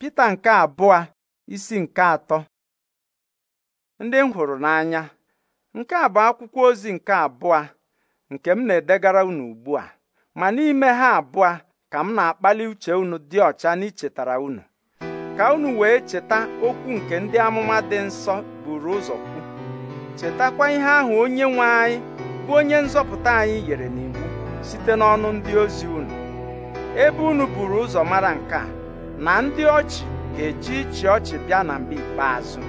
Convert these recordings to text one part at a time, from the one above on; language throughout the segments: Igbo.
Pita nke abụọ isi nke atọ ndị m hụrụ n'anya nke a bụ akwụkwọ ozi nke abụọ nke m na-edegara unu ugbu a ma n'ime ha abụọ ka m na-akpali uche unu dị ọcha n'ichetara unu ka unu wee cheta okwu nke ndị amụma dị nsọ buru ụzọ kwu chetakwa ihe ahụ onye nwe anyị bụ onye nzọpụta anyị yere n'iwu site n'ọnụ ndị ozi unu ebe unu buru ụzọ mara nke a na ndị ọchị ga-eji ịchị ọchị bịa na mba ikpeazụ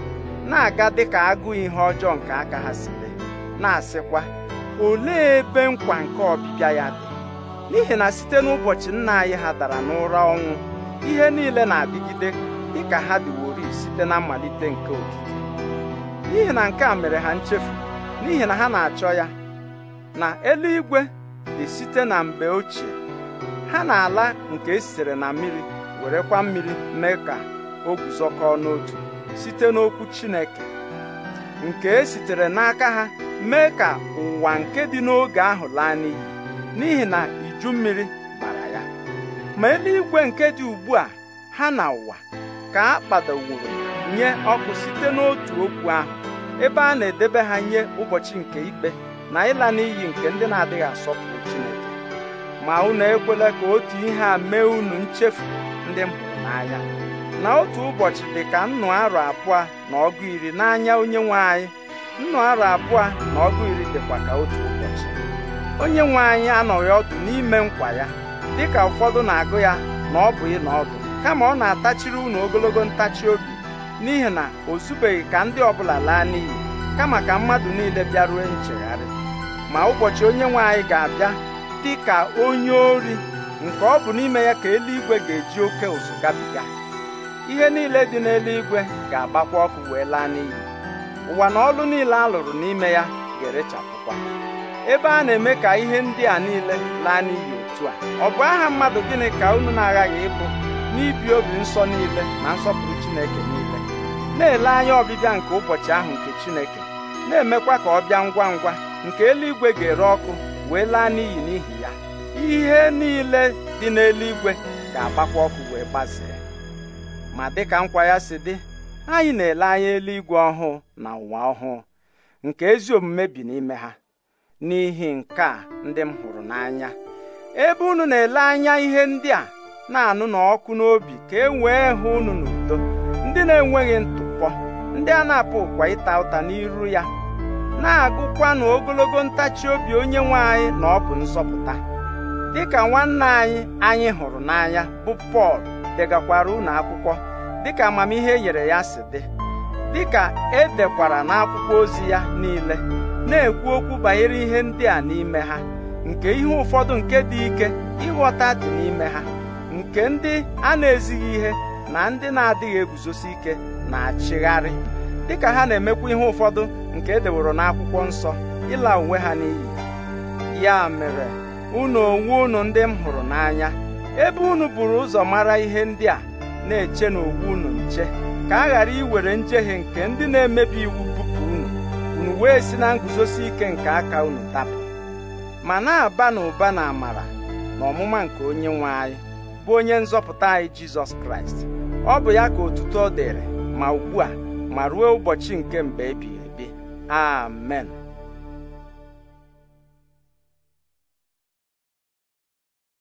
na-aga dịka agụụ ihe ọjọọ nke aka ha si na-asịkwa olee ebe nkwa nke ọbịbịa ya dị n'ihi na site n'ụbọchị nna anyị ha dara n'ụra ọnwụ ihe niile na-adịgide dịka ha dịwori site na mmalite nke okike n'ihi na nke a mere ha nchefu n'ihi na ha na-achọ ya na eluigwe dị site na mgbe ochie ha na-ala nke esitere na mmiri werekwa mmiri mee ka o guzokọọ n'otu site n'okwu Chineke nke e sitere n'aka ha mee ka ụwa nke dị n'oge ahụ laa n'iyi n'ihi na iju mmiri gbara ya ma eluigwe nke dị ugbu a ha na ụwa ka a kpadowuru nye ọkụ site n'otu okwu ahụ ebe a na-edebe ha nye ụbọchị nke ikpe na ịla n'iyi nke ndị na-adịghị asọpụrụ Chineke ma unu ekwela ka otu ihe a mee unu nchefu ndị m n'anya na otu ụbọchị dị ka nnụ arọ abụọ na ọgụ iri n'anya onye nwe anyị nnụ arọ abụọ na ọgụ iri dịkwa ka otu ụbọchị onye nwe anyị anọghị ọdụ n'ime nkwa ya dịka ụfọdụ na-agụ ya na ọ bụ ịna ọdụ kama ọ na-atachiri unu ogologo ntachi obi n'ihi na o zubeghị ka ndị ọbụla laa n'iyi kama ka mmadụ niile bịaruo nchegharị ma ụbọchị onye nwe anyị ga-abịa dị ka onye ori nke ọ bụ n'ime ya ka eluigwe ga-eji oke ụzụ gabiga ihe niile dị n'eluigwe ga-agbakwa ọkụ wee laa n'iyi ụwa na ọlụ niile a lụrụ n'ime ya ga-erechapụkwa ebe a na-eme ka ihe ndị a niile laa n'iyi otu a ọ bụ aha mmadụ gịnị ka unu na-aghaghị ịbụ n'ibi obi nsọ niile na nsọpụrụ Chineke niile na-ele anya ọbịbịa nke ụbọchị ahụ nke Chineke na-emekwa ka ọ bịa ngwa ngwa nke eluigwe ga-ere ọkụ wee laa n'iyi n'ihi ya ihe niile dị n'eluigwe ga-agbakwa ọkụ wee gbazee ma dịka nkwa ya si dị anyị na-ele anya eluigwe ọhụụ na ụwa ọhụụ nke ezi omume bi n'ime ha n'ihi nke a ndị m hụrụ n'anya ebe unu na-ele anya ihe ndị a na-anụ n'ọkụ n'obi ka e wee hụ unu n'udo ndị na-enweghị ntụpọ ndị a na-apụ ụkwa ịta ụta n'iru ya na-agụkwanụ ogologo ntachi obi onye nwe anyị na ọ bụ nsọpụta dịka nwanne anyị anyị hụrụ n'anya bụ Pọl degakwara unu akwụkwọ dịka amamihe nyere ya si dị dịka e dekwara n'akwụkwọ ozi ya niile na-ekwu okwu banyere ihe ndị a n'ime ha nke ihe ụfọdụ nke dị ike ịghọta dị n'ime ha nke ndị a na-ezighị ihe na ndị na-adịghị eguzosi ike na-achịgharị dịka ha na-emekwa ihe ụfọdụ nke e deworo n'akwụkwọ nsọ ịla uwe ha n'iyi ya mere unu onwe unu ndị m hụrụ n'anya ebe unu buru ụzọ mara ihe ndị a na-eche n'ogbu unu nche ka a ghara iwere njehie nke ndị na-emebi iwu bupụ unu unu wee si na nguzosi ike nke aka unu tapụ ma na-aba n'ụba na amara na ọmụma nke onye nwe anyị bụ onye nzọpụta anyị jizọs kraịst ọ bụ ya ka otuto dịrị ma ugbu a ma ruo ụbọchị nke mgbe ebighị Amen.